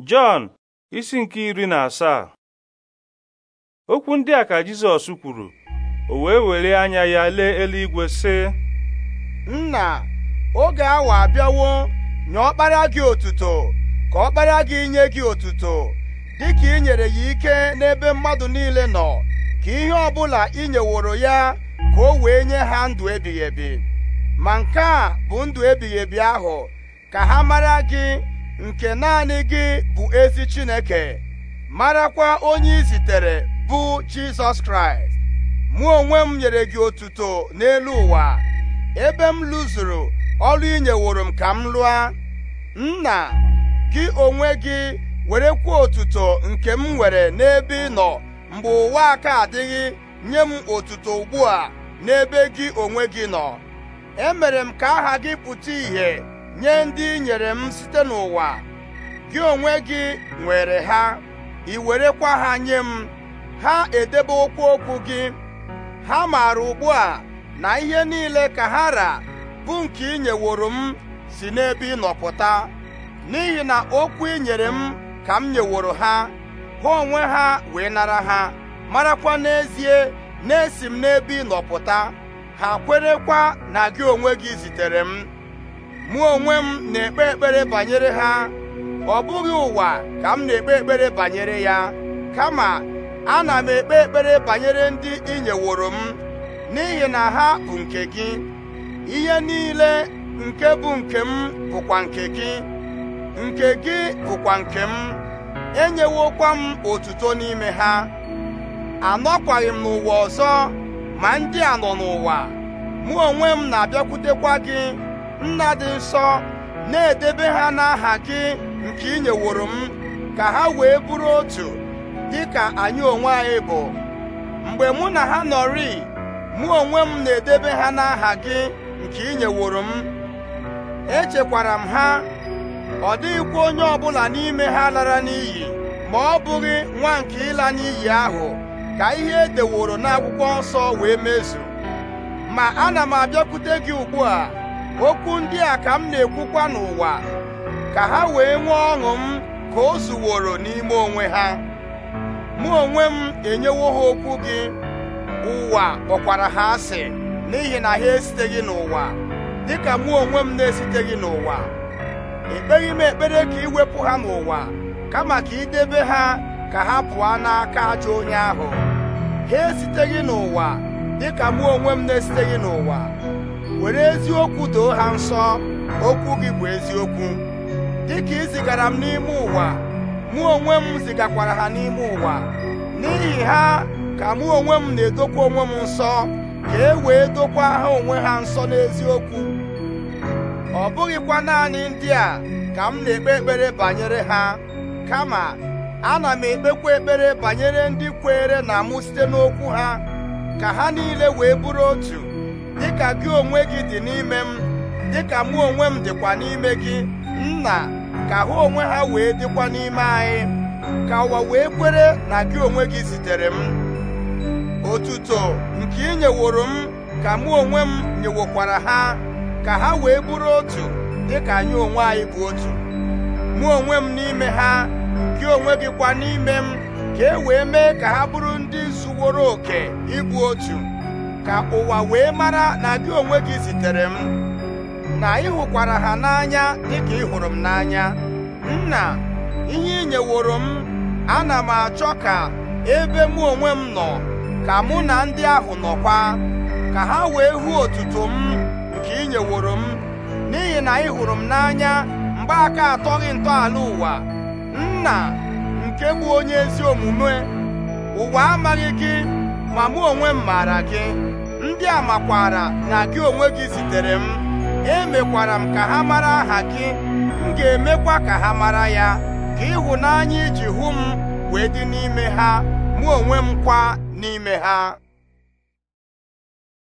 Jọn isi nke iri na asaa okwu ndị a ka Jizọs kwuru o wee were anya ya lee eluigwe sị nna oge awa abịawo nye ọkpara gị otuto ka ọkpara gị nye gị otuto dịka i nyere ya ike n'ebe mmadụ niile nọ ka ihe ọbụla ị nyeworo ya ka o wee nye ha ndụ ebighị ebi ma nke a bụ ndụ ebighị ebi ahụ ka ha mara gị nke naanị gị bụ ezi Chineke marakwa onye i zitere bụ Jizọs Kraịst mụ onwe m nyere gị otuto n'elu ụwa ebe m lụzuru ọrụ inyeworo m ka m lụa nna gị onwe gị were werekwa otuto nke m nwere n'ebe ị nọ mgbe ụwa aka adịghị nye m otuto ugbu a n'ebe gị onwe gị nọ emere m ka aha gị pụta ìhè nye ndị i nyere m site n'ụwa gị onwe gị nwere ha ị werekwa ha nye m ha edebe okwu okwu gị ha maara ugbu a na ihe niile ka ha ra bụ nke inyeworo m si n'ebe ịnọpụta n'ihi na okwu i nyere m ka m nyeworo ha ha onwe ha wee nara ha marakwa n'ezie na-esi m n'ebe ịnọpụta ha kwerekwa na gị onwe gị zitere m mụ onwe m na-ekpe ekpere banyere ha ọ bụghị ụwa ka m na-ekpe ekpere banyere ya kama ana m ekpe ekpere banyere ndị ị nyeworo m n'ihi na ha bụ nke gị ihe niile nke bụ nke m bụkwa nke gị nke gị bụkwa nke m enyewokwa m otuto n'ime ha anọkwaghị m n'ụwa ọzọ ma ndị a nọ n'ụwa mụ onwe m na-abịakwutekwa gị nna dị nsọ na-edebe ha n'aha gị nke ị nyeworo m ka ha wee bụrụ otu dị ka anyị onwe anyị bụ mgbe mụ na ha nọrị mụ onwe m na-edebe ha n'aha gị nke ị nyeworo m echekwara m ha ọ dịghịkwa onye ọbụla n'ime ha lara n'iyi ma ọ bụghị nwa nke ịla n'iyi ahụ ka ihe edeworo n'akwụkwọ nsọ wee mezu ma ana m abịakwute gị ugbu a okwu ndị a ka m na-ekwukwa n'ụwa ka ha wee nwee ọṅụ m ka o zuworo n'ime onwe ha mụ onwe m enyewo ha okwu gị ụwa kpọkwara ha asị n'ihi na ha esiteghị n'ụwa dịka mụ onwe m na-esiteghị n'ụwa ekpeghị m ekpere ka wepụ ha n'ụwa kama ka idebe ha ka ha pụọ n'aka ajọ onye ahụ ha esiteghị n'ụwa dịka mụ onwe m na-esiteghị n'ụwa were eziokwu doo ha nsọ okwu gị bụ eziokwu dịka ị zigara m n'ime ụwa mụ onwe m zigakwara ha n'ime ụwa n'ihi ha ka mụ onwe m na-edokwa onwe m nsọ ka e wee dokwa ha onwe ha nsọ n'eziokwu ọ bụghịkwa naanị ndị a ka m na-ekpe ekpere banyere ha kama ana m ekpekwa ekpere banyere ndị kweere na mụ site n'okwu ha ka ha niile wee bụrụ otu dịka gị onwe gị dị n'ime m dịka mụ onwe m dịkwa n'ime gị nna ka ha onwe ha wee dịkwa n'ime anyị ka ụwa wee kwere na gị onwe gị zitere m otuto nke ị nyeworo m ka mụ onwe m nyewokwara ha ka ha wee bụrụ otu dịka anyị onwe anyị bụ otu mụ onwe m n'ime ha gị onwe gị kwa n'ime m ka e wee mee ka ha bụrụ ndị zuworo oke ịbụ otu ka ụwa wee mara na gị onwe gị zitere m na ị hụkwara ha n'anya dịka ị hụrụ m n'anya nna ihe ị nyeworo m ana m achọ ka ebe mụ onwe m nọ ka mụ na ndị ahụ nọkwa ka ha wee hụ otuto m nke ị nyeworo m n'ihi na ị hụrụ m n'anya mgbe aka atọghị ntọala ụwa nna nke bụ onye ezi omume ụwa amaghị gị ma mụ onwe m maara gị ndị a makwara na gị onwe gị zitere m emekwara m ka ha mara aha gị m ga-emekwa ka ha mara ya ka ịhụnanya iji e hụ m wee dị n'ime ha mụ onwe m kwa n'ime ha